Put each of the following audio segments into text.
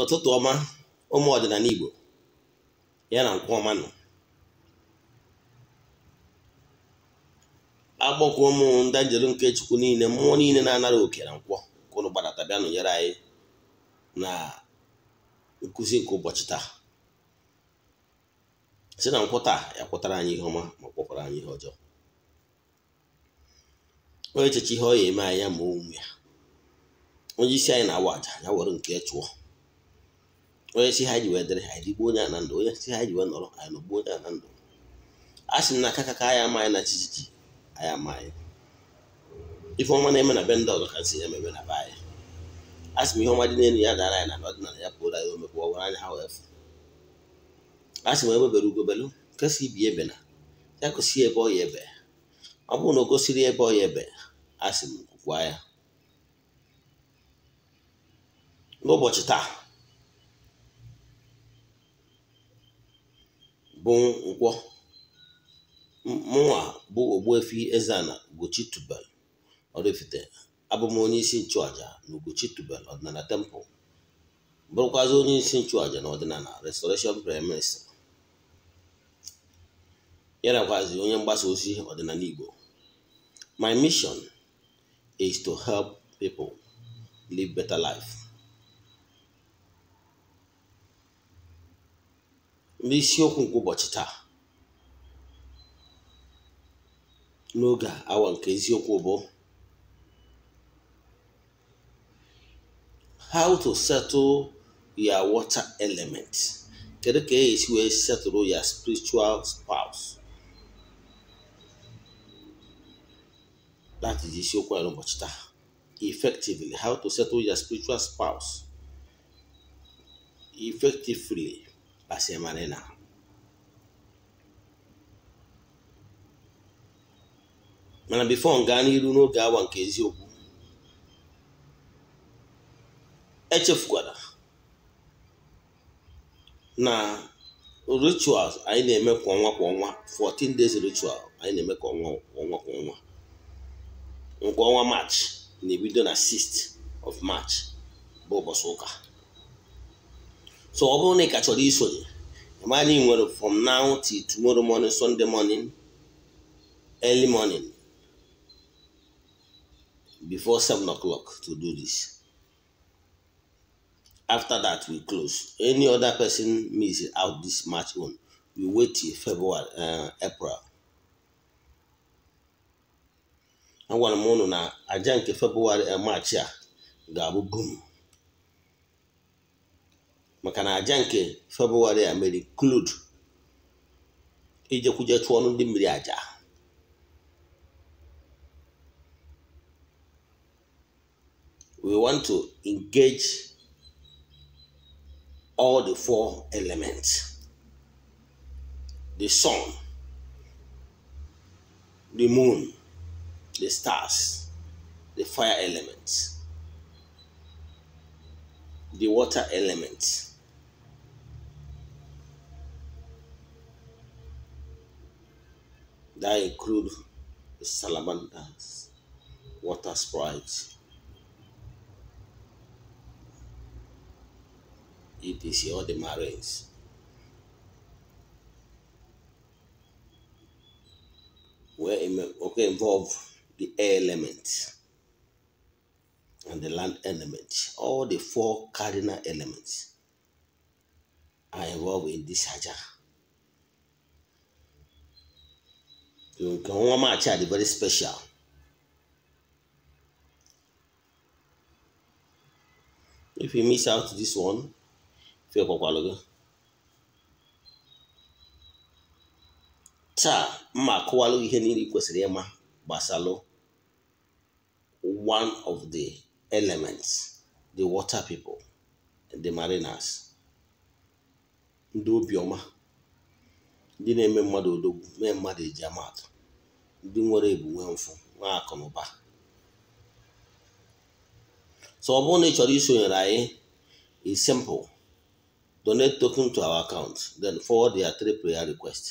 ụtụtụ ọma ụmụ ọdịnala Igbo ya na nkwụ ọma nọ agbọkọ ụmụ ndị nke Chukwu niile mmụọ niile na-anara oke na nkwọ ka ụlọ gbadata bịa nụnyere anyị na nkụzi nke ụbọchị taa si na nkwụ taa ya kwụtara anyị ihe ọma ma kpọkwara anyị ihe ọjọọ Onye echeche ihe ọ ya eme anyị ya ma o ya onye isi anyị na-awa aja ya were nke chụọ onye si ha ji wee dịrị anyị rigbuo onye na ndụ onye si ha ji wee nọrọ anyị nọgbuo onye na ndụ a sị na aka ka anyị ama anyị na chichichi anyị ama anyị ife ọma na-eme na be ndị ọzọ ka si emebe na be anyị a sị m ihe ọma dị n'elu ya dara anyị na ọdịnala ya pụrụ anyị omekwa ọwara anya ha wee fụ a sị m ebebere ugobelu nkesi ibi ebe na ya gosi ebe ọ ya ebe ọ bụrụ na o gosiri ebe ọ ya ebe a sị m kwukwa ya n'ụbọchị taa bụ nkwọ mụnwa bụ efi eze ezeana ugochi tubel oraifite abụ onye isi nchụaja na ugochi tubel ọdịnala tempụl bụrụkwazị onye isi nchụaja na ọdịnala restoration prime minister onye mgbasa ozi ọdịnala igbo my mission is to help people live better life n'isiokwu nke ụbọchị taa n'oge awa nke eziokwu bụ how to settle your water element kedu ka esi wee settle your spiritual spouse that is isiokwu ya n'ụbọchị taa effectively how to settle your spiritual spouse effectively Pasé Marena. mana bifo m gaa n'iru n'oge awa nke eziokwu echefukwara na rituals anyị na-eme kwa ọnwa kwa ọnwa 14 days ritual anyị na-eme kwa ọnwa kwa ọnwa kwa nke ọnwa march na-ebido na 6th of march bụ ụbọchị ụka So ọ bụrụ na ị kachọrọ isonye amadi nwere from now till tomorrow morning Sunday morning early morning before seven o'clock to do this. After that, we close. Any other person miss out this match on, we wait till February, uh, April. Agwara m unu na aja nke February uh, March a ga-abụ boom. maka na aja nke febụwarị a mere klud ijekwuje chụọ ọnụ ndị mmiri aja we want to engage all the four elements the sun the moon the stars the fire elements the water elements that include the salamanders, water sprites. ETC all the marines. Where okay involve the air element and the land element. All the four cardinal elements are involved in this hajjah. nka wọn a kyɛ ade very special if you miss out this one fɛ kɔkɔalɔgɔ taa mma akɔwalɔ ihe niile kwesịrị ịma gbasalụ one of the elements the water people the mariners ndị obiọma ndị na-eme mmadụ odogwu mee mmadụ eji amatụ ndị nwere ebu nwee mfụ nwee akụ na ụba so ọ bụrụ na ị chọrọ isonyere anyị is simple donate token to our account then forward their three prayer requests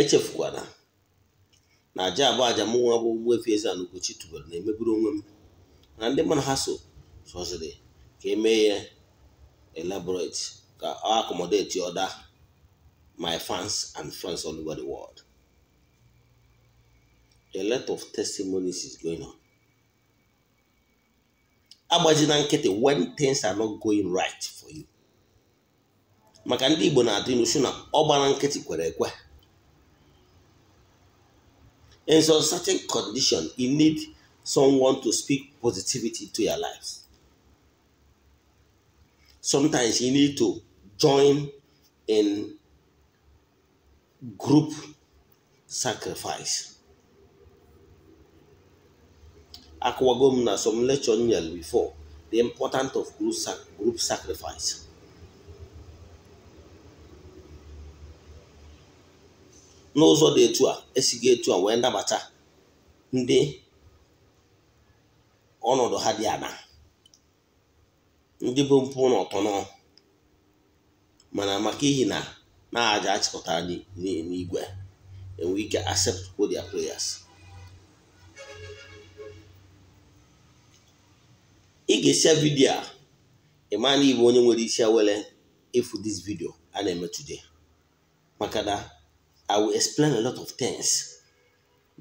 echefukwana na aja abụ aja m nwa bụ Ogbuefi Eze-Ana Ugochi tubelu na-emeburu onwe m na ndị mana ha so soziri ka emee ya elaborate ka ọ other my fans and friends all over the world a lot of testimonies is going on agbajina nkịtị when things are not going right for you maka ndị Igbo na-atụ ilu na ọ gbara nkịtị kwere ekwe in some certain condition you need someone to speak positivity to your life. sometimes you need to join in group sacrifice akụwago na some lecture nyere before the importance of group, sac group sacrifice n'ụzọ dị etu a esighị etu a wee nabata ndị ọnọdụ ha dị anaa ndị bụ mpụ na nọ mana maka ihi na na aja achịkọtara n'igwe enwe ike accept their players. ị ga-esi vidiyo a ịma onye nwere isi awere ịfụ this video a na-eme today maka na i will explain a lot of things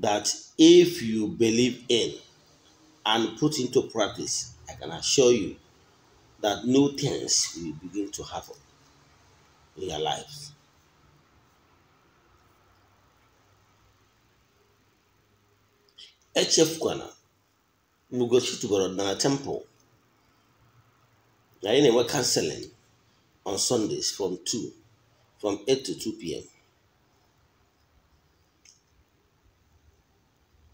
that if you believe in and put into practice i can assure you that new things will begin to happen in your lives. echefukwana Mugochi tugoro na temple na anyị na-enwe counseling on Sundays from 2 from 8 to 2 p.m.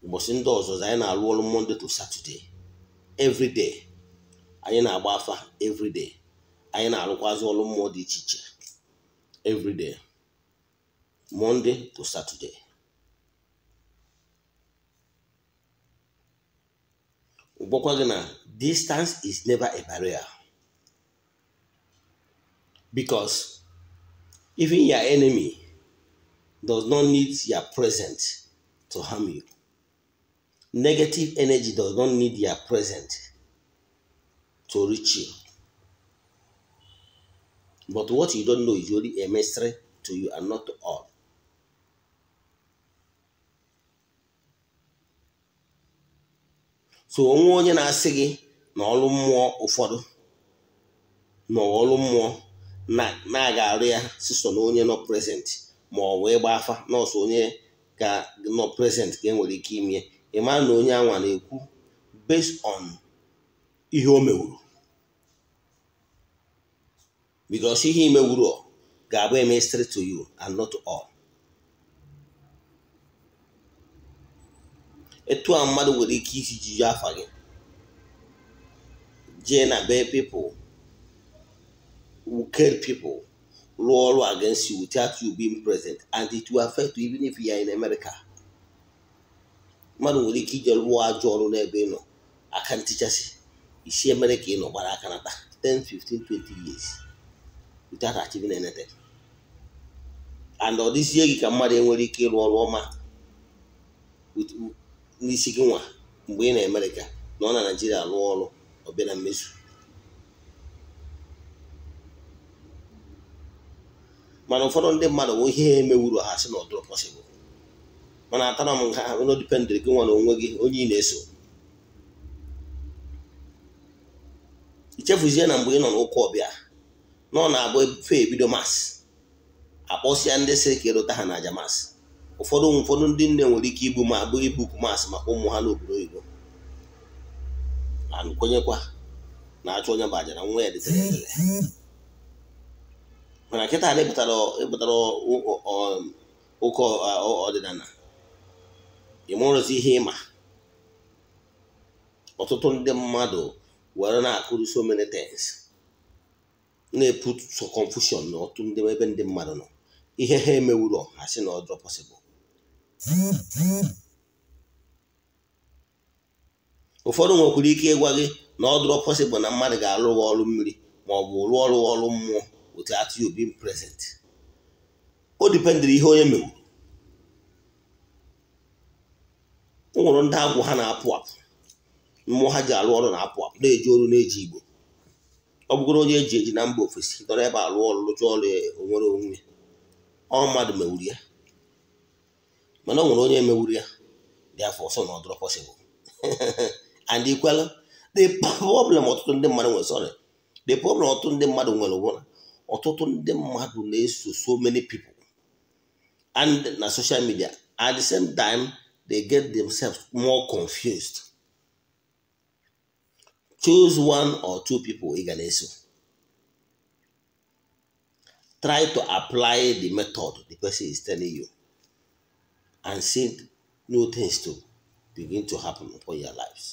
ụbọchị ndị ọzọ anyị na-arụ ọrụ Monday to Saturday every anyị na-agba afa everyday anyị na-arụkwazị ọrụ mmụọ dị iche iche everyday Monday to Saturday gwakwa gị na distance is never a barrier because even your enemy does not need your present to harm you negative energy does not need your present to reach you. But what you don't know is only a to you and not to all. so onwe onye na-asị gị na ọrụ mmụọ ụfọdụ na mmụọ na-aga arụ ya siso na onye nọ present ma ọ wee gba afa nọọsụ onye ga nọ present ka enwere ike ime ịma na onye anwa na-ekwu based on ihe o mewuru bikos ihe imewuru ga-abụ eme straight to you and not all etu a mmadụ nwere ike isi jiji afa gị jee na be pipo who care rụọ ọrụ against you without you being present and it will affect you even if you are in America mmadụ nwere ike ije rụọ ajọ ọrụ n'ebe ị nọ aka ntichasị isi emere ka ị nọ gbara aka nata 10 15 20 years without achieving anything and ọ dịzie gị ka mmadụ enwere ike ịrụ ọrụ ọma n'isi gị nwa mgbe ị na amerịka na ọ na naijiria rụọ ọrụ ọbịa na mmezu mana ụfọdụ ndị mmadụ bụ ihe emewuru ha sị na ọ pọsịbụl mana atara m ha n'odipendịrị gị nwa na onwe gị onye ị na-eso chefuzie na mgbe ị nọ n'ụka ọbịa nọ na-abụ fe ebido masị akpọsịa ndị si ka ịrụta ha na masị ụfọdụ ụfọdụ ndị nne nwere ike ibu ma abụ ibuku masị maka ụmụ ha n'obodo oyibo kwenyekwa na achụ onye bụ aja na nwa ya dịtere mana nkịta na ịpụtara ụka ọdịnala ịmụrụzi ihe ịma ọtụtụ ndị mmadụ were na-akụrụ so many things na-eput so confusion na otu ndị ebe ndị mmadụ nọ ihe ha emewuro ha si na ọdọ ụfọdụ nwekwara ike ịgwa gị na ọdụrọ possible na mmadụ ga-alụ ọrụ mmiri ma ọ bụ rụọ ọrụ ọrụ mmụọ otu atụ obi being present o dipendịrị ihe onye mewuru o ndị agwụ ha na-apụ apụ mmụọ ha ji alụ ọrụ na-apụ apụ na-eji ọrụ na-eji igbo ọ bụgoro onye eji eji na mba ofesi dọrọ ebe alụ ọrụ lụcha ọrụ e, onwere onwe ọ mmadụ mewuru ya mana ọ nwere onye mewuru ya dị afọ ọsọ na ọdụrụ pọsịbụl and ikwela the problem ọtụtụ ndị mmadụ nwere sorry the problem ọtụtụ ndị mmadụ nwere ụbụla ọtụtụ ndị mmadụ na-eso so many people and na social media at the same time they get themselves more confused choose one or two people ị ga na-eso try to apply the method the person is telling you and see new things to begin to happen for your lives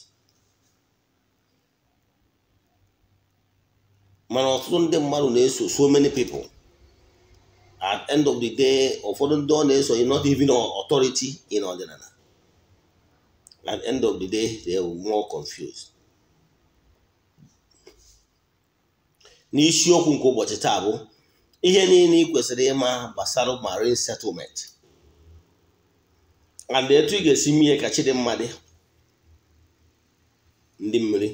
mana ọtụtụ ndị mmadụ na-eso so many people at end of the day ụfọdụ ndị ọ na-eso not even authority in ọdịnala at end of the day they will more confused n'isiokwu nke ụbọchị taa bụ ihe niile ị kwesịrị ịma gbasara marine settlement and etu ị ga-esi mee ka chidimma ndị mmiri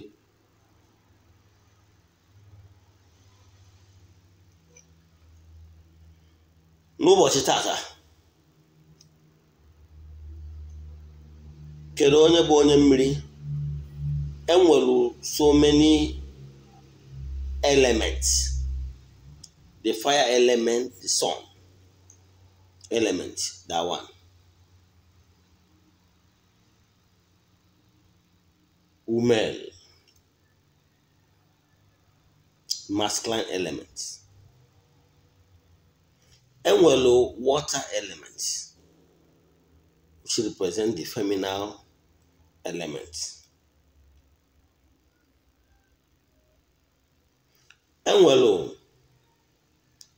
n'ụbọchị tata kedu onye bụ onye mmiri enwere so many elements the fire element the sun element that one Umel. masculine element Enwelo water element which represent the feminine element enwelu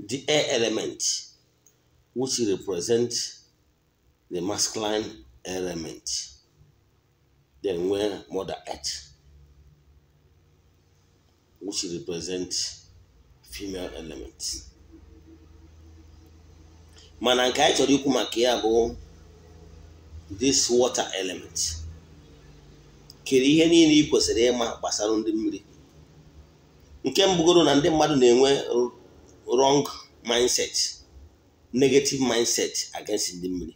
the air element which represent the masculine element then nwee mother earth which represent female element mana nke anyị chọrọ ikwu maka ya bụ this water element kere ihe niile ị kwesịrị ịma gbasara ndị mmiri nke mbụgoro na ndị mmadụ na-enwe wrong mindset negative mindset against ndị mmiri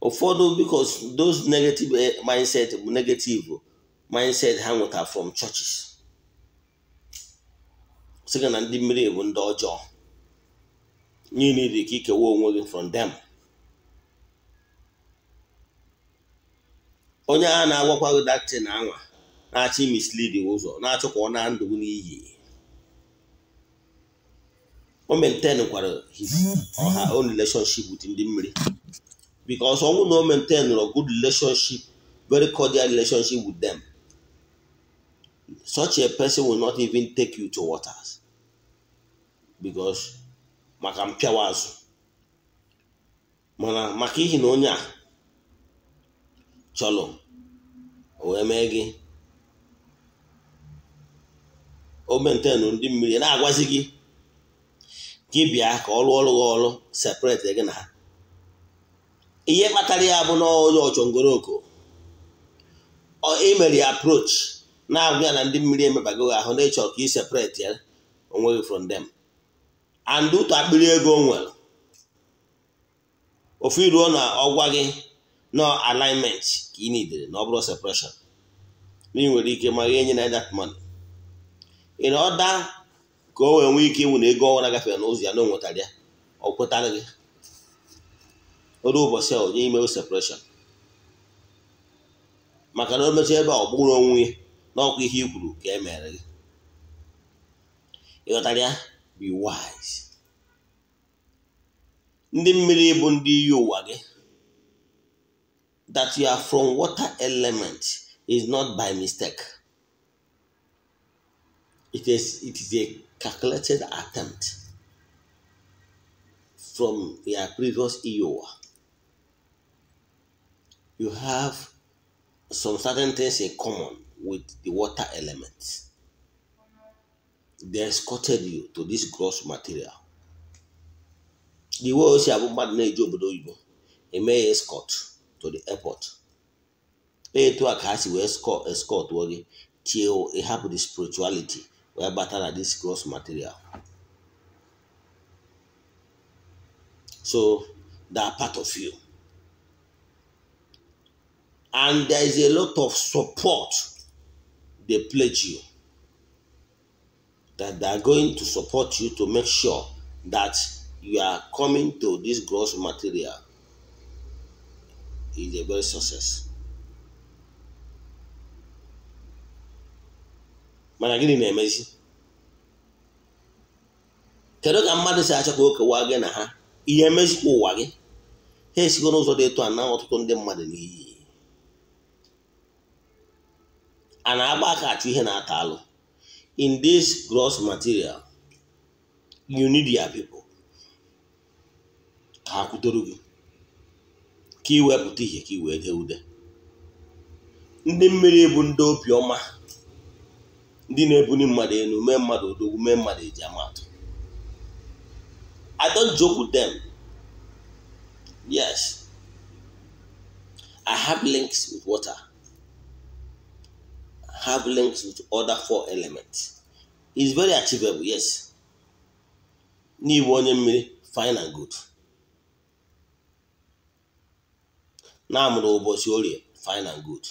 ụfọdụ because those negative eh, mindset bụ negative mindset ha nweta from churches sịga na ndị mmiri bụ ndị ọjọọ niile dị ka ikewa onwe gị from them onye a na-agwakwa gị datin anwa na-achọ imislidi ụzọ na-achọ ka ọ na ndụ n'iyi o mentenkwara ọha o relationship with ndị mmiri because ọnwụ na o maintain good relationship very cordial relationship with them such a person will not even take you to waters because maka mpịawa azụ mana maka ihi na onye a chọrọ o wee mee gị o ndị mmiri na-agwazi gị gị bịa ka ọ rụọ ọrụ ọrụ separate gị na ha ihe kpatara ya bụ na onye ọchọngoroko imere e ya approach na-agwa ya na ndị mmiri emebago gị ahụ na ịchọ ka ị separate ya onwe gị from them and ụtọ akpịrị ego nwere ofu iruo na ọgwa gị nọ alignment ka ị nidere na ọ bụrụ separation na ị nwere ike ma gị enye na that money in order ka o wee nwee ike ịnwụ na ego ọnwa gafee n'ụzọ ya na o ya ọ kwetara gị oru ụbọchị a onye ime separation maka na o mechaa ebe a ọ bụrụ onwe ya na ọkwa ihe i ka e mere gị ịghọtara ya be wise ndị mmiri bụ ndị iyi ụwa gị that you are from water element is not by mistake. It is, it is a calculated attempt from their previous EOA. You have some certain things in common with the water element. They escorted you to this gross material. The way osi abụ mmadụ na-eji obodo oyibo eme escort to the airport. Etu a ka ha si wee escort wee gị till ịhapụ e the spirituality wee bata na this gross material so they are part of you and there is a lot of support they pledge you that they are going to support you to make sure that you are coming to this gross material is a very success. mana gịnị na-emezi kedu ka mmadụ si achọ ka o kewaa gị na ha ihe emezikwa ụwa gị ha esigo n'ụzọ dị etu a na ọtụtụ ndị mmadụ n'iyi a na-agba aka achụ ihe na-ata alụ in this gross material you need your people ka ha kwutoro gị ka iwepụta ihe ka i wee dee ude ndị mmiri bụ ndị obiọma ndị na-ebuli mmadụ elu mee mmadụ odogwu mee mmadụ eji amatụ I don't joke with them. Yes. I have links with water. I have links with other four elements. It's very achievable, yes. N'ịbụ onye mmiri fine and good. na-amụrụ ụbọchị orie fine and good.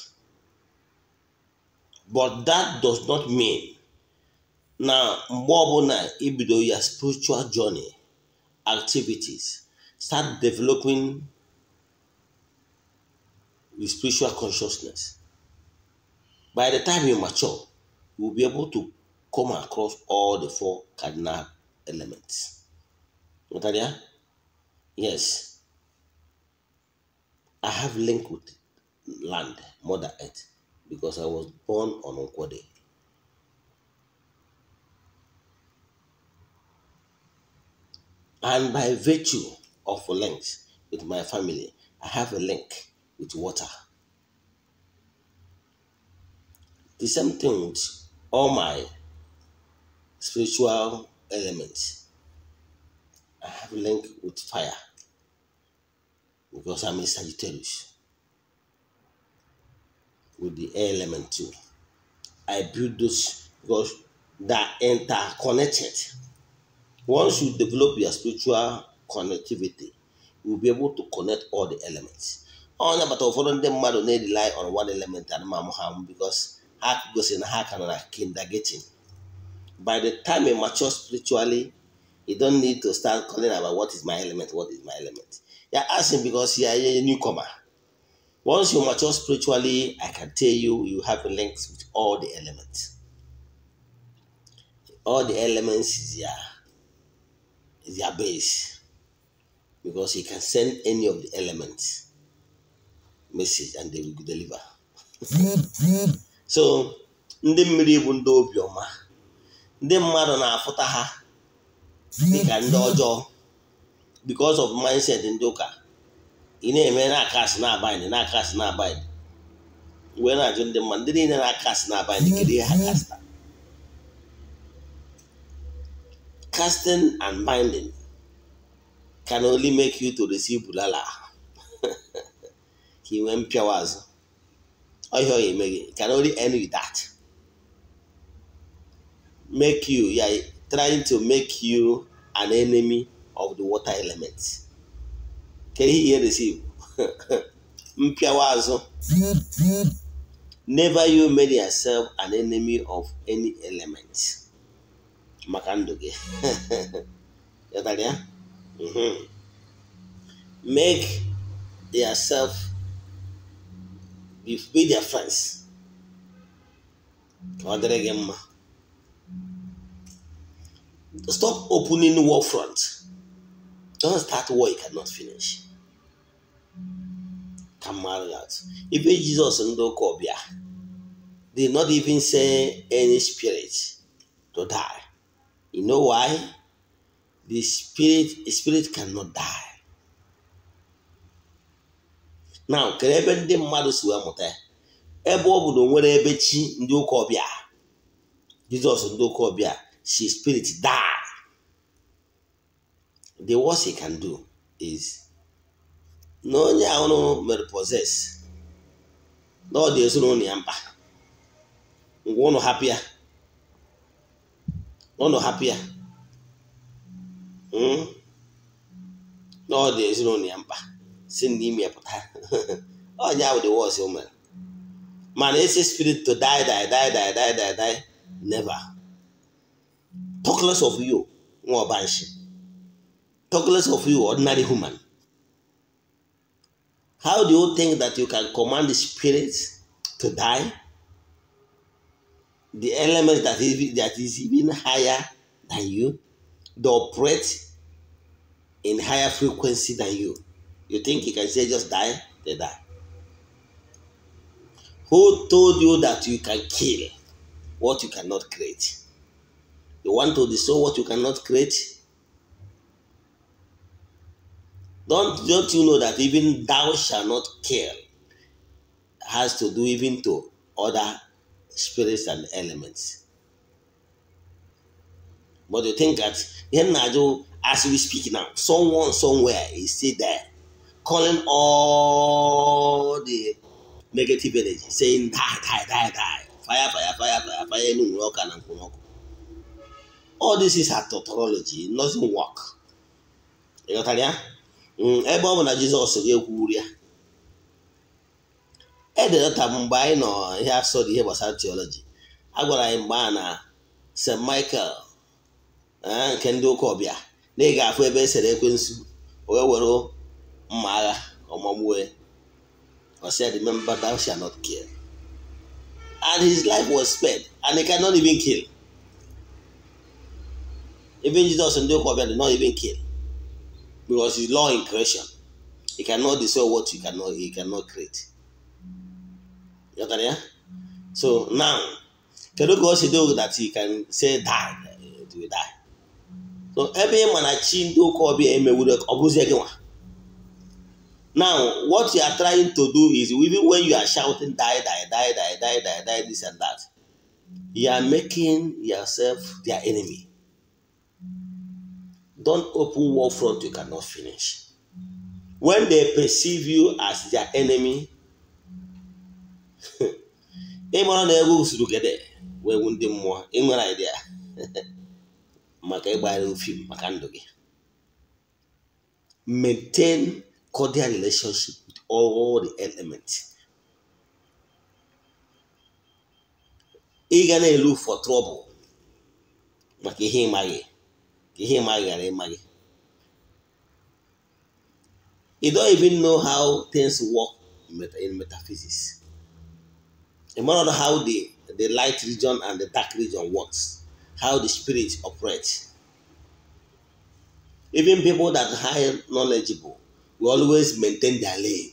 but that does not mean na mgbe ọbụla ibido e ya spiritual journey activities start developing with spiritual consciousness by the time you mature you will be able to come across all the four cardinal elements yes i have link with land mother earth because I was born on Okwode, And by virtue of a link with my family, I have a link with water. The same thing with all my spiritual elements. I have a link with fire because I'm a Sagittarius. with the air element too. I build those because they are interconnected. Once you develop your spiritual connectivity, will be able to connect all the elements. Onye agbata ụfọdụ ndị mmadụ na-rely on one element and ma ha because ha gosiri na ha ka nọ na kindergarten. By the time you mature spiritually, you don't need to start calling about what is my element, what is my element. You're asking because you're a newcomer. Once you mature spiritually, I can tell you, you have links with all the elements. All the elements is their, is their base because you can send any of the elements message and they will deliver. so ndị mmiri bụ ndị obioma ndị mmadụ na-afụta ha dịka ndị ọjọọ because of mindset ndị ụka ị na-eme na-akasị na-abaịdị na-akasị na-abaịdị wee na-ajụ ndị mma ndị na-akasị na-abaịdị kedu ihe ha mm-hmm. kasta casting and binding can only make you to receive bulala He went mpịawa azụ ọhịa ọ can only end with that make you yeah, trying to make you an enemy of the water element kedu ihe na-esi mpịawa azụ never you made yourself an enemy of any element maka ndụ gị mhm. make yourself be their friends ka ọ dịrị gị mma stop opening war front don't start war you cannot finish ka mmadụ na-atụ jizọs ndị ụka ọbịa they not even send any spirit to die you know why the spirit spirit cannot die now kere ebe ndị mmadụ si wee mụta ebe ọ nwere ebe chi ndị ụka ọbịa jizọs ndị ụka ọbịa si spirit die the worst he can do is na onye ahụ mere poses na ọ dị ezinụlọ ya mkpa ngwa ụnụ hapụ ya ụnụ hapụ ya hmm? na ọ dị ezinụlọ ya mkpa si n'ime ime pụta onye ahụ dị wọs mere mana esi spirit to die die die die die die die never talk of you nwa ọbanshi talk less of you ordinary human How do you think that you can command the spirit to die? The element that is, that is even higher than you, they operate in higher frequency than you. You think you can say just die? They die. Who told you that you can kill what you cannot create? You want to destroy what you cannot create? Don't don't you know that even thou shall not kill has to do even to other spirits and elements. But you think that as we speak now, someone somewhere is still there, calling all the negative energy, saying die, die, die, die, fire, fire, fire, fire, fire, all this is a tautology, it doesn't work. You know what I mean? Mm, ebe ọ bụ na jizọs ga-ekwuru ya ededata mgbe anyị nọ ihe asọdụ ihe gbasara tiọlọji agwara anyị mgbe a na st michael eh, nke ndị ụka ọbịa na ị ga-afụ ebe e sere ekwensu wee were mma agha ọmọgbue or said, Remember, thou shalt not kill. And his life was spared, and he cannot even kill. Even Jesus and ọbịa did not even kill. because it's law in creation. you cannot destroy what you cannot you cannot create. You know yeah? So now kedụ ka o do that he can say die to die. So ebe ị ma na chi ndị ụka ọbịa emewuru ọ bụrụzie Now what you are trying to do is even when you are shouting die die die die die die die this and that you are making yourself their enemy. don't open war front you cannot finish. When they perceive you as their enemy, ịmara na ego usoro gede wee wu ndị mmụọ ịnwere idea maka ịgbagharị ofim maka ndụ gị maintain cordial relationship with all the elements ị ga na-elu for trouble maka ihe ịmaghị ka ihe ịma ghara ịma gị you don't even know how things work in metaphysics. You don't know how the, the light region and the dark region works, how the spirit operates. Even people that are high knowledgeable will always maintain their lane.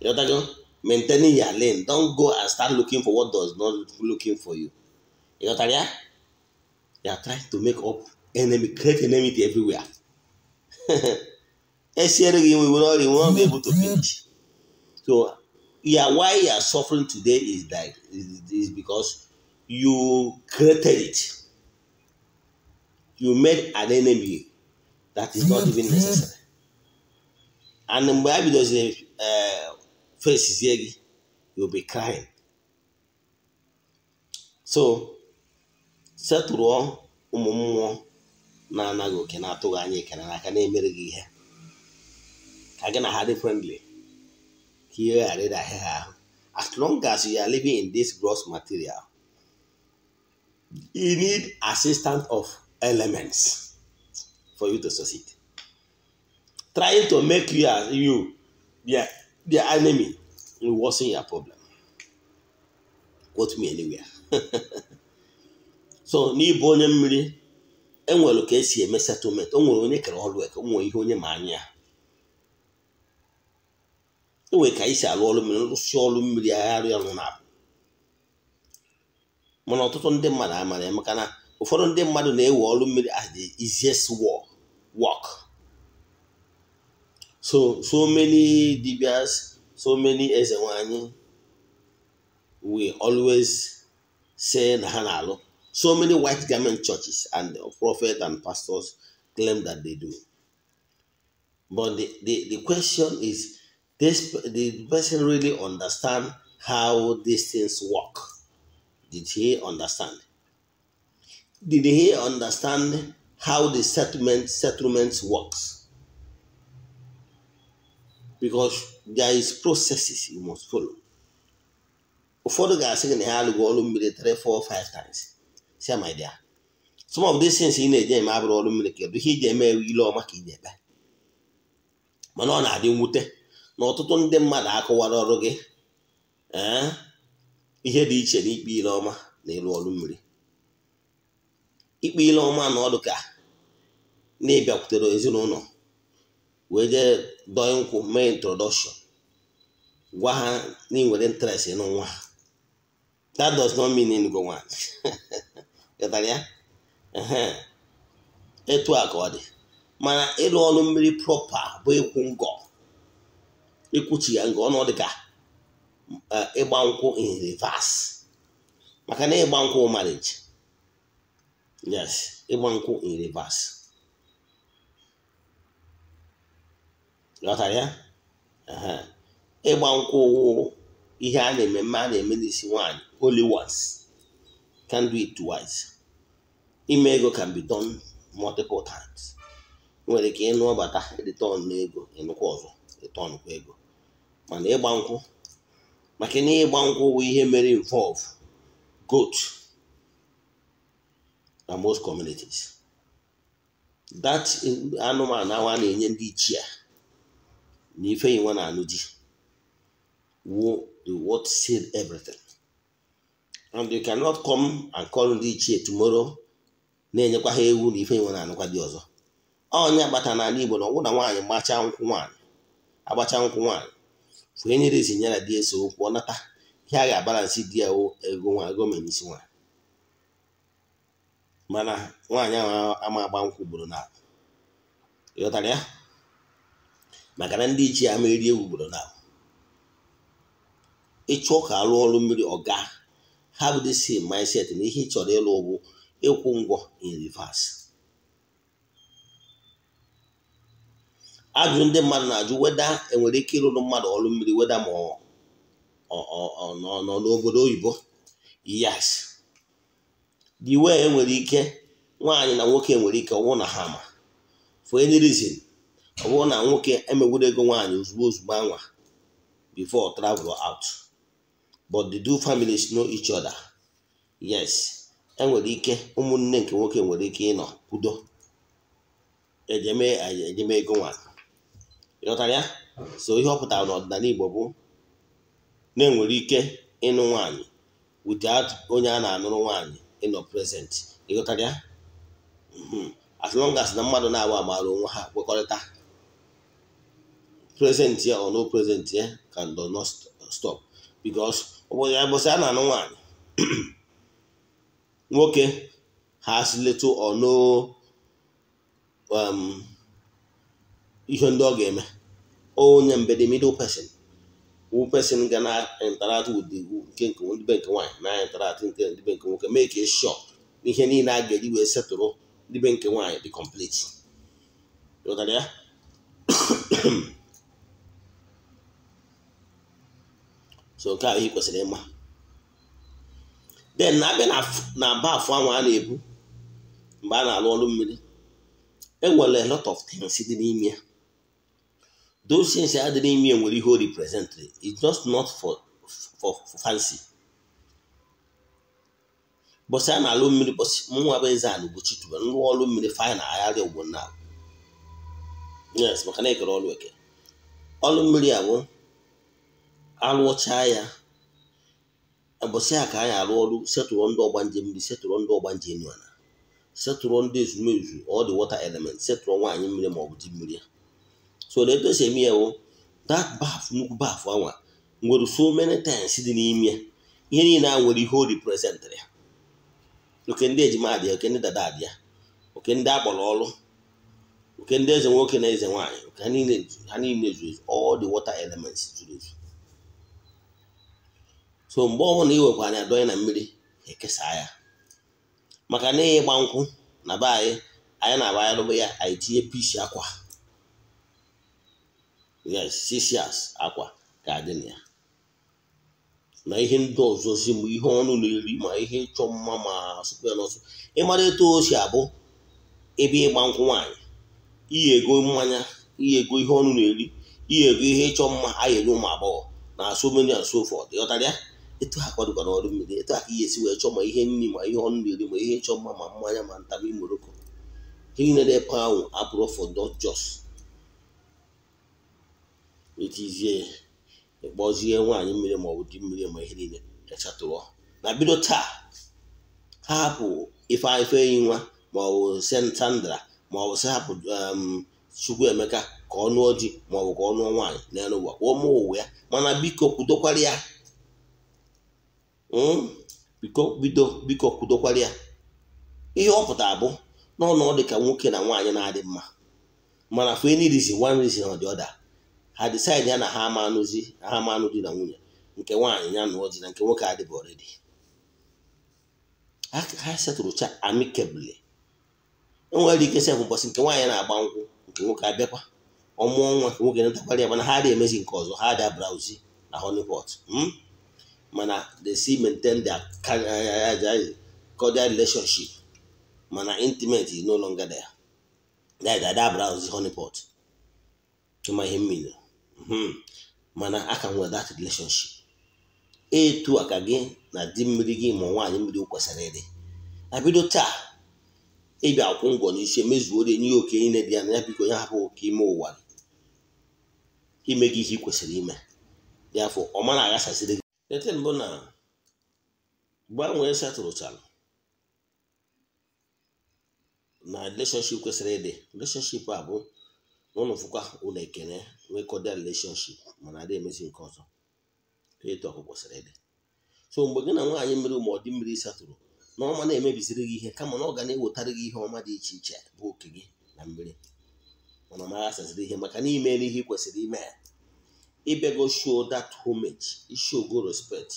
You know Maintaining your lane. Don't go and start looking for what does not looking for you. You know what I mean? They are trying to make up enemy, create enemy everywhere. Esiere gị we will not, we will not be able to finish. So, yeah, why you are suffering today is that is, because you created it. You made an enemy that is not even necessary. And mgbe a face fesizie gị, you'll be crying. So, setụrụọ ụmụ mmụọ na-anaghị oke na-atụghị anya ekele n'aka na-emere gị ihe ka gị na ha dị frendli ka ihe ghara ịdahị ha ahụ as long as you are living in this gross material you need assistance of elements for you to succeed trying to make you as you their, their enemy will worsen your problem quote me anywhere so n'ịbụ onye mmiri enwere ka esi eme setụlmentị onwere nwere onye kere ọrụ eke onwere ihe onye ma anya ya enwere ka anyị si alụ ọlụ mmiri nrụsi ọrụ mmiri agharịa ọrụ na mana ọtụtụ ndị mmadụ amara ya maka na ụfọdụ ndị mmadụ na-ewe ọrụ mmiri as the easiest work so so many dibias so many eze we always say na ha na-alụ So many white garment churches and uh, prophets and pastors claim that they do. But the, the, the question is this the person really understand how these things work? Did he understand? Did he understand how the settlement settlements works? Because there is processes you must follow. ufodu the ga-asị gị na ha go ọrụ mmiri 3 4 5 times. sia my dear some of these things ị na-eje eme abụrụ ọrụ mmiri kedu ihe iji eme ile ọma ka ị na-eme mana ọ na-adị mwute na ọtụtụ ndị mmadụ akụwara ọrụ gị ee ihe dị iche na ikpe ile ọma na ịrụ ọrụ mmiri ikpe ile ọma na ọdụ ka na-ebịakwutere ezinụlọ wee jee dọọ nkwụ mee introdọkshọn gwa ha na ị nwere interest n'nwa ha that does not mean ịtara ya etu a ka ọ dị mana ịrụ ọrụ mmiri prọpa bụ ịkwụ ngọ ịkwụchi ya ngọ ọnụ dịka e, ịgba nkwụ in maka na ịgba nkwụ marriage yes ịgba nkwụ in reverse ghọtara ya ịgba nkwụ ihe a na-eme mma a na-eme n'isi nwaanyị holy ones can do it twice. Ime ego can be done multiple times. nwere ike ịnụọbata return ọnụ ego ịnụkwa ọzọ return kwa ego mana ịgba nkwụ maka na ịgba nkwụ bụ ihe mere involve goat na most communities that anụmanụ awa na-enye ndị ichie na ife inwe na anụ ji wo the word said everything and you cannot come and call ndị ichie tomorrow na-enyekwa ha ewu na ife nwe na anụkwa dị ọzọ onye agbata n'ala Igbo na ọgwụ na nwaanyị gbachaa nkwụ nwaanyị agbacha nkwụ nwaanyị fụnye nyere isi nyara di eso okwu nata ihe a ga-abalansị di ya ego nwa ego isi nwa mana nwaanyị ahụ ama agba nkwụ ugboro na ịghọtara ya maka na ndị ichie ama eri ewu ugboro na ịchụọ ka alụ ọrụ mmiri ọga have the same mindset na ihe ị chọrọ ịlụ ụgwụ ịkwụ ngwọ in reverse ajụ ndị mmadụ na-ajụ weda enwere ike ịrụrụ mmadụ ọrụ mmiri weda ma ọ nọ n'obodo oyibo yes di wee enwere ike nwaanyị na nwoke nwere ike ọnwụ na ha ma for any reason ọ bụrụ na nwoke emegwuru ego nwaanyị ozugbo ozugbo anwa before travel out but the two families know each other yes enwere ike ụmụnne nke nwoke nwere ike ịnọ kwudo ejeme e ego nwa ịghọtara ya so ihe ọ pụtara n'ọdịnala Igbo na-enwere ike ịnụ nwanyị without onye a na-anụrụ nwanyị ịnọ present ịghọtara ya mm-hmm. as long as na mmadụ na-agba amaara onwe ha kwekọrịta present ya or ya stop because obodo ya bụsị a na-anụ nwaanyị nwoke ha little or no um, ihe ndị ọ ga-eme onye mbede middle person wu person ga na interact with the nke nke nke nwaanyị na interact nke ndị nke nwoke make sure ihe niile a ga-eji wee setụrụ dịbe nke nwaanyị dị complete so nke ahụ ị kwesịrị ịma den na-abịa na aba afọ ahụ a na-ebu mgbe a na-alụ ọlụ mmiri enwere a lot of things dị n'ime ya those things ya dị n'ime nwere ihe o represent it's just not for for fancy bọsị a na-alụ mmiri bọsị mụnwa bụ eze anụ bụ chitube nrụọ ọrụ mmiri fanyị na agharị ugbo na alụọchaa ya ụbọchị a ka anyị alụ ọrụ setụrụ ndị ọgba njem mmiri setụrụ ndị ọgba njem ala setụrụ ndị ezumezu all the water element setụrụ nwaanyị mmiri ma ọ bụ di mmiri ya so na etu esi eme ya wụ that baf nnukwu baf anwa nwere so many times dị n'ime ya ihe niile a nwere ihe o reprezentịrị ya oke ndị ejima adịa oke ndị dada adịa oke ndị akpọrọ ọrụ oke ndị eze nwoke na eze nwaanyị oke ha niile ha niile zuru ezu ọ dị water elements zuru ezu so mgbe ọ bụla iwekwa anya dọnye na mmiri ekesa ya maka na ịgba nkwụ na be anyị anyị na-agba ya ya anyị tinye akwa yes sisias akwa ga dị na ya na ihe ndị ọzọzi mgbe ihe ọnụ na-eri ma ihe ịchọ mma ma asụpụ ya n'ọsọ ịmara etu o si abụ ebe ịgba nkwụ nwaanyị iyi ego mmanya iyi ego ihe ọnụ na-eri iyi ego ihe ịchọ mma anyị ụmụ agbọghọ na so asụ and so ya etu ha kwadokwana ọrụ mmiri etu ha ka ihe esi wee chọọ ma ihe nri ma ihe ọnụ na-eri ma ihe chọọ mma ma mmanya ma ntabi imoroko ihe niile na-epe ahụ abụrụ for not etizie ịkpọzie nwaanyị mmiri ma ọ bụ di mmiri ma ihe niile rechatụrụ na bido taa ha hapụ ife enyi nwa ma ọ bụ sentandra ma ọ bụ si hapụ um, Chukwuemeka ka ọnụọ nụọ di ma ọ bụ ka ọ nụọ nwaanyị n'elu ụwa ka ọ mụọ ụwa ya mana biko kwudokwara ya Hmm? bido biko kwudokwara ya ihe ọ pụtara bụ n'ọnụ ọ ka nwoke na nwaanyị na-adị mma mana for any reason one reason or the other ha decide ya na ha ama anụzi ha ama anụ di na nwunye nke nwaanyị ya na di na nke nwoke adịbụ already ha setụrụcha amicably enwere ike sef ụbọchị nke nwaanyị na-agba nkwụ nke nwoke abịakwa ọmụọ nwa nke nwoke natakwara ya mana ha adịghị emezi nke ọzọ ha adịa brauzi na honeypot hmm? mana they still maintain eh, eh, eh, their cordial relationship mana intimate is no longer there that that browse honeypot tụma ihe mmiri mana a nwere that relationship etu aka gị na di mmiri gị ma nwaanyị mmiri kwesịrị ịdị bido taa ịbịa akwụ ngwọ n'isi emezuoro enye ya oke ile dị ya na ya biko ya hapụ oke ime ụwa ime gị ihe ị kwesịrị ime dị afọ ọ mara aghasasịrị ete mbụ na gbanwee setụlụchara na relationship kwesịrị ịdị relationship a bụ n'ụlọ fụkwa ụlọ ekene nwekọda relationship mana adị emezi nke ọzọ etu kwesịrị ịdị so mgbe gị na nwaanyị mmiri ma ọ dị mmiri satụrụ na ọma na-emebiziri gị ihe kama na ọ ga na-ewetara gị ihe ọma dị iche iche bụ oke gị na mmiri mana ọ ihe maka na imeela ihe ị kwesịrị ime ibe go show that homage show go respect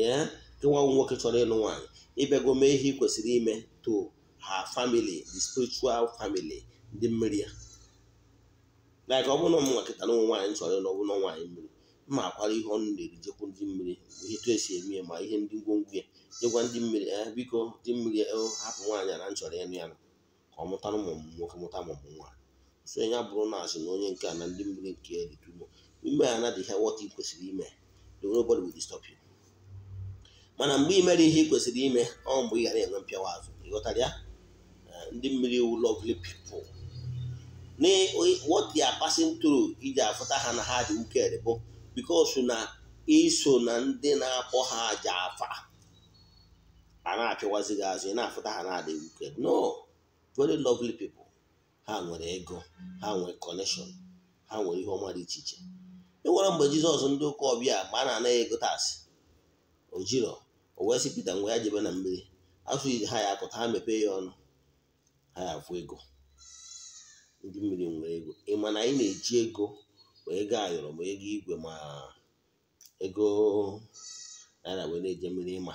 yeah nwa nwoke chọrọ ịlụ nwaanyị ibe go mee ihe ị kwesịrị ime to her family the spiritual family ndị mmiri ya like ọ bụrụ na ụmụ nkịta na ụmụ nwaanyị chọrọ ịlụ ọbụla nwaanyị mmiri mma akwara ihe ọnụ na-eri jekwu ndị mmiri ihe tu esi eme ya ma ihe ndị ngwongwo ya jekwa ndị mmiri ya eh, biko ndị mmiri eh, hapụ nwaanyị na nchọrọ ịnụ ya ka ọ na ụmụ nwoke mụta mụmụ nwaanyị so ya bụrụ na asị na onye nke a na ndị mmiri nke ya dị ime anadị ihe what ị kwesịrị ime nobody will disturb you mana mgbe ị mere ihe ị kwesịrị ime ọ mgbe ị ghara enwe mpịawa azụ ịghọtara ya eh, ndị mmiri wu lovely people na what they are passing iji afụta ha na ha dị uked bụ because na iso na ndị na-akpọ ha aja afa a na-achụwazi gị azụ ị na-afụta ha na adịghị uked no very lovely people ha nwere ego ha nwere connection ha nwere ihe ọma dị iche iche e nwere mgbe jizọs ndị ụka ọbịa ma a na-anaghị ego taasị ojiro o wee sị pita ngwa ya jebe na mmiri asụ iji ha ya akụta ha mepee ya ọnụ ha ya afụ ego ndị mmiri nwere ego ịma na anyị na-eji ego ma ego ayọrọ ma ego igwe ma ego naira wee na-eje mmiri ịma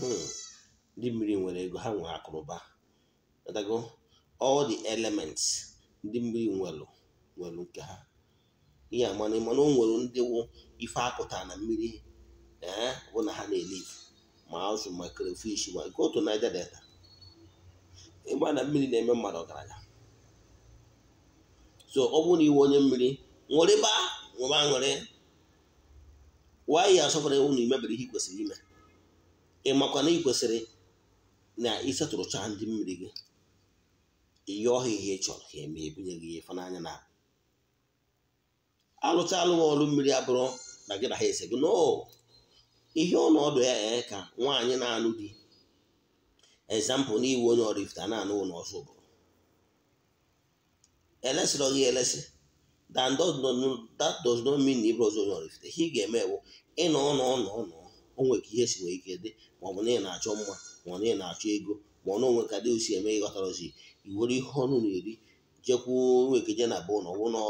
hmm. ndị mmiri nwere ego ha nwere akụrụba all the elements ndị mmiri nwelụ nwelụ nke ha ihe amana mana o nwere ndị wụ ife apụta na mmiri ee eh, bụ na ha na-eliv ma azụ ma crayfish ma go to Niger Delta ịgba na mmiri na-eme mmadụ ọgaranya so ọ bụrụ na iwe onye mmiri ṅụrịba ṅụba ṅụrị wayi ewu na imebere ihe kwesịrị ime ị makwa na ikwesịrị na ịsetụrụcha ndị mmiri gị ihe ọha ihe chọrọ ka eme ebinye gị ife n'anya na alụta alụ mmiri abụrụ na gị na ha esego no ihe ọnọdụ ya ee ka nwaanyị na alụ di ezampụl n'iwu onye ọrifta na-anụ ụlọ ọsọ bụ elesịrọ gị elesị that does mean na ọzọ onye ọrifta ihe ị ga-eme ewu ịnọ ọnọ ọnọ ọnọ onwe ihe si nwere ike dị ma ọ bụ na ị na-achọ mma ma ọ na ị na-achọ ego ma ọ na onwe ka dị osi eme ịghọtara ozi iwere ihe ọnụ na-eri jekwuo onwe ka je na bụ ụlọ wụlọ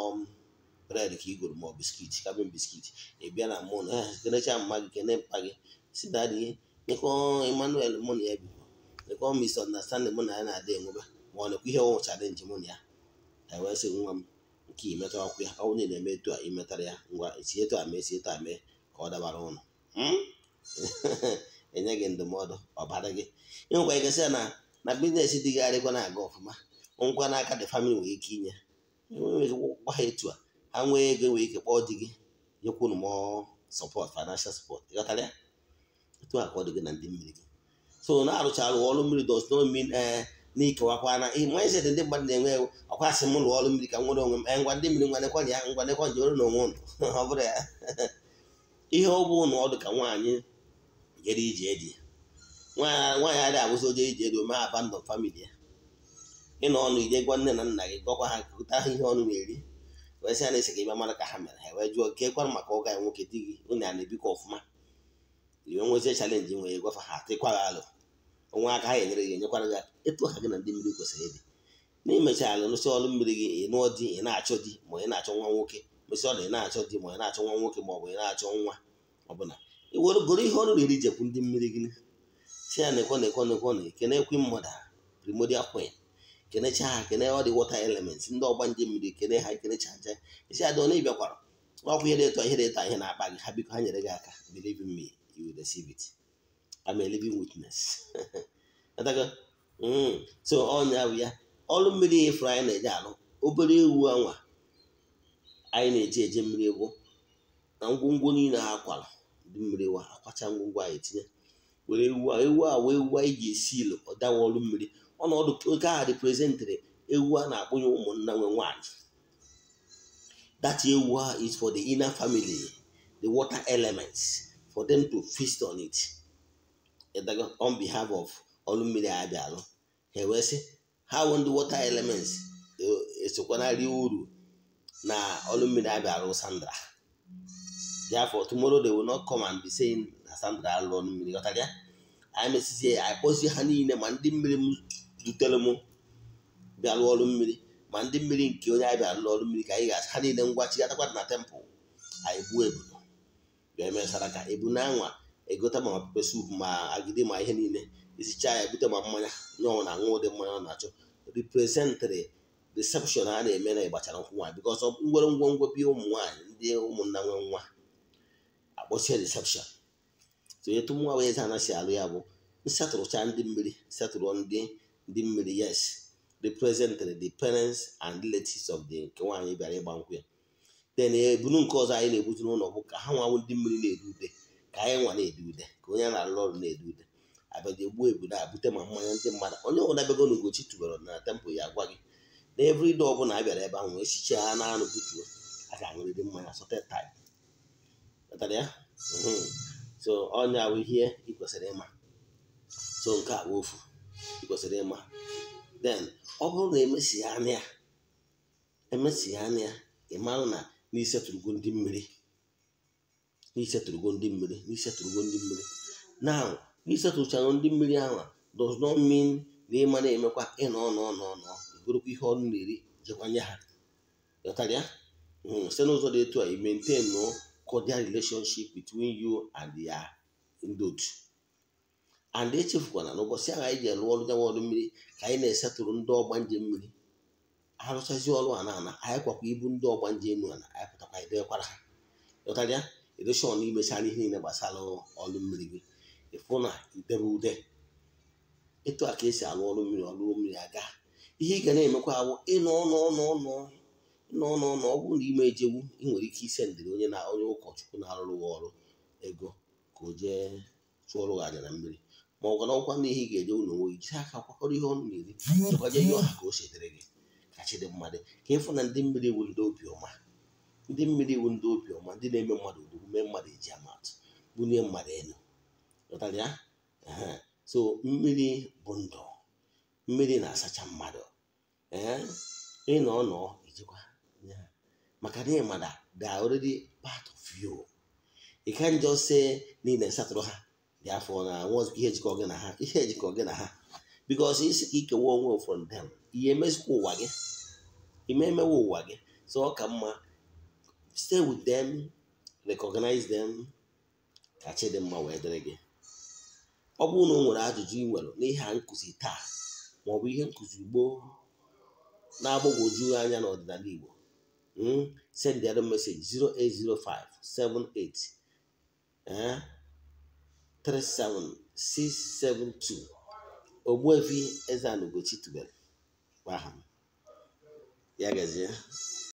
bred ka i goro ma ọ biskit ka bịa biskit ị bịa na mụn kelechaa mma gị kene mpa gị si dadị ihe nyekọ emmanuel mụ na ya biko nyekọ misunderstanding mụ na ya na-adị enwebe ma ọ nekwa ihe ọnwụ chalenji mụ na ya e wee sị nwa m nke imetara ọkụ ya ọnwụ na eme etu a imetara ya ngwa si etu a mee si etu a mee ka ọ dabara ụnụ hmm? enye gị ndụmọdụ ọbara gị ịnwekwa ike sị na na biznes dịgharịkwa na-aga ọfụma ngwa n'aka dị famili nwere ike inye enweghị gwa ha etu a ha nwee ego nwee ike kpọọ di gị nyekwunu m sọpọt financial support ịghọtara ya etu a ka ọ dị na ndị mmiri gị so na-arụcharụ ọrụ mmiri dos no eh, na ikewakwa na ndị mmadụ na-enwe ewu m ụlọ ọrụ mmiri ka nwere onwe m eh, ngwa ndị mmiri ngwanekwa ya ngwanekwa ji ọrụ na onwe ụlọ ọ bụrụ ya ihe ọ bụ na ọdụ ka nwaanyị jere ije dị nwaanyị adịghị abụzi oje ije ego mee famili ya ọnụ ije gwa nne na nna gị gọkwa ha kụta ihe ọnụ na-eri wee sị na-ese ka ịbịa mara ka ha mere ha wee jụọ ke kwara maka ụka ya nwoke di gị unu ya na-ebikọ ọfụma iwe nwezie chalenji nwe ya gwafa ha tịkwa gị alụ onwe aka ha enyere gị enyekwara gị etu ha gị na ndị mmiri kwesịrị ịdị n'imecha alụ nụsị ọrụ mmiri gị ị nụọ di ị na-achọ di ma ị na-achọ nwa nwoke mesị ọla ị na-achọ di ma ị na-achọ nwa nwoke ma ọ bụ ị na-achọ nwa ọbụla ị were ihe ọrụ riri jekwu ndị mmiri gị si ya na-ekwe na-ekwe na-ekwe na eke ekwe mmadụ primordial queen kenecha ha kene ọ dị wọta elements ndị ọgba ndị mmiri kene ha kenecha aja isi adị ọ na-ebiakwara ọkwụ ihe dị ihe dị eto ihe na-akpa gị ha biko ha nyere gị aka believe in me you will receive it I'm a living witness mm. so ọnya bụ ya ọrụ mmiri ịfụrụ anyị na-eje alụ obere ewu anwa anyị na-eji eje mmiri egwu na ngwongwo niile ha akwara ndị mmiri wa akwacha ngwongwo anyị tinye were ewu ewu a wee ewu anyị ji esi ilo ọ dawa ọrụ mmiri ọnọdụ oke aha representrị ewu a na-akpụnye ụmụnna nwe nwanyị that ewu a is for the inner family the water elements for them to feast on it on behalf of ọlụmmiri abịalụ ha wee sị ha won the water elements esokwanarị e uru na ọlụmmiri abịalụ sandra therefore tomorrow they will not come and be saying na sandra alụ ọlụmmiri ghọtara ya anyị i anyị kpọzie ha niile ma ndị mmiri dutere m bịa lụọ ọrụ mmiri ma ndị mmiri nke onye anyị bịa lụọ ọrụ mmiri ka anyị ga-asị ha niile ngwa chigatakwa na tempụl anyị gbuo ebudo bịa emesara ka ebu na anwa egote ma pepe sup ma agidi ma ihe niile isichaa ya ebute ma mmanya nye ọnwụ na aṅụ ụdị mmanya ọ na-achọ riprezentịrị risepshọn a na-eme na ịgbachara nkwụ nwaanyị bikọs ngwere ngwongwo bi ụmụ nwaanyị ndị ụmụnna nwe nwa akpọchie risepshọn sonyetu nwa wee eze anasị alụ ya bụ nsetụrụcha ndị mmiri setụrụ ndị ndị mmiri yes represented the parents and relatives of the nke nwaanyị bịara ịgba nkwụ ya then ebunu nke ọzọ anyị na-ebutu n'ụlọ bụ ka ha nwanwụ ndị mmiri na edude ude ka anyị nwa na-ede ude ka onye na-alụ ọrụ na-ede ude abịaghị egbuo ebudo a bute ma mmanya ndị mmadụ onye ọbụla bịago n'ugochi tubere na tempụl ya gwa gị na everide ọbụla a bịara ebe ahụ wee ha na anụ butuo a ga-aṅụrịrị mmanya sotet ya mm-hmm. so ọnya bụ ihe ị kwesịrị ịma so nke a bụ ofu kwesịrị ịma then ọ bụrụ na emesi ya anya emesi ya na n'isetụrụgo ndị mmiri n'isetụrụgo ndị ndị mmiri now n'isetụrụchago ndị mmiri ahụ does not mean na ịma na-emekwa ịnọ ọnọ ihe ọnụ na-eri ha hmm, site n'ụzọ dị etu a i maintain cordial relationship between you and ala echefukwana ụbọchị ahụ anyị ji alụ ọrụ nyanwa ọrụ mmiri ka anyị na-esetụrụ ndị ọgba nje mmiri arụchazi ọrụ a na-ana anyị kwakwa ibu ndị ọgba nje enu ana anyị pụtakwa edekwara ha ụtarịa edoshọn imechara ihe niile gbasara ọrụ mmiri gị ịfụ na idebe ude etu a ka esi alụ ọrụ mmiri ọrụ mmiri aga ihe ị ga na-emekwa awụ ịnọ ọnụ ịnọ ọ na ime ejewu ị nwere ike ise ndịrị onye na onye ụkọchukwu na-arụrụ ọrụ ego ka o jee chụọrụ gị aja na mmiri ma ọ gwara ọkwa na ihe ga-eje ụlọ nwoke jiri aka kwakọrọ ihe ọnụ na-eri chekwanye ihe ọha ka o setere gị ka dị mmadụ ka ịfụ na ndị mmiri iwu ndị obiọma ndị mmiri iwu ndị obiọma ndị na-eme mmadụ odogwu mee mmadụ eji amatụ mmadụ elu ụtarị so mmiri bụ ndụ mmiri na-asacha mmadụ ee nọ maka na ịmada the already part of you ị ka njọ see niile satụrụ ha ya afọ na ihe ejikọ gị na ha ihe ejikọ gị na ha bikos isi ka ikewa onwe from them ihe emezikwa ụwa gị ime emewe ụwa gị so ọ ka mma stay with them recognize them ka chi dị wee dịrị gị ọ bụrụ na o nwere ajụjụ ị nwere n'ihe a nkụzi taa maọbụ ihe nkụzi gboo na-agbagwoju anya n'ọdịnala Igbo hmm, send the other message 0805 37672 ogbuevi Eze-Ana Ugochi tubelu gbaa ha ya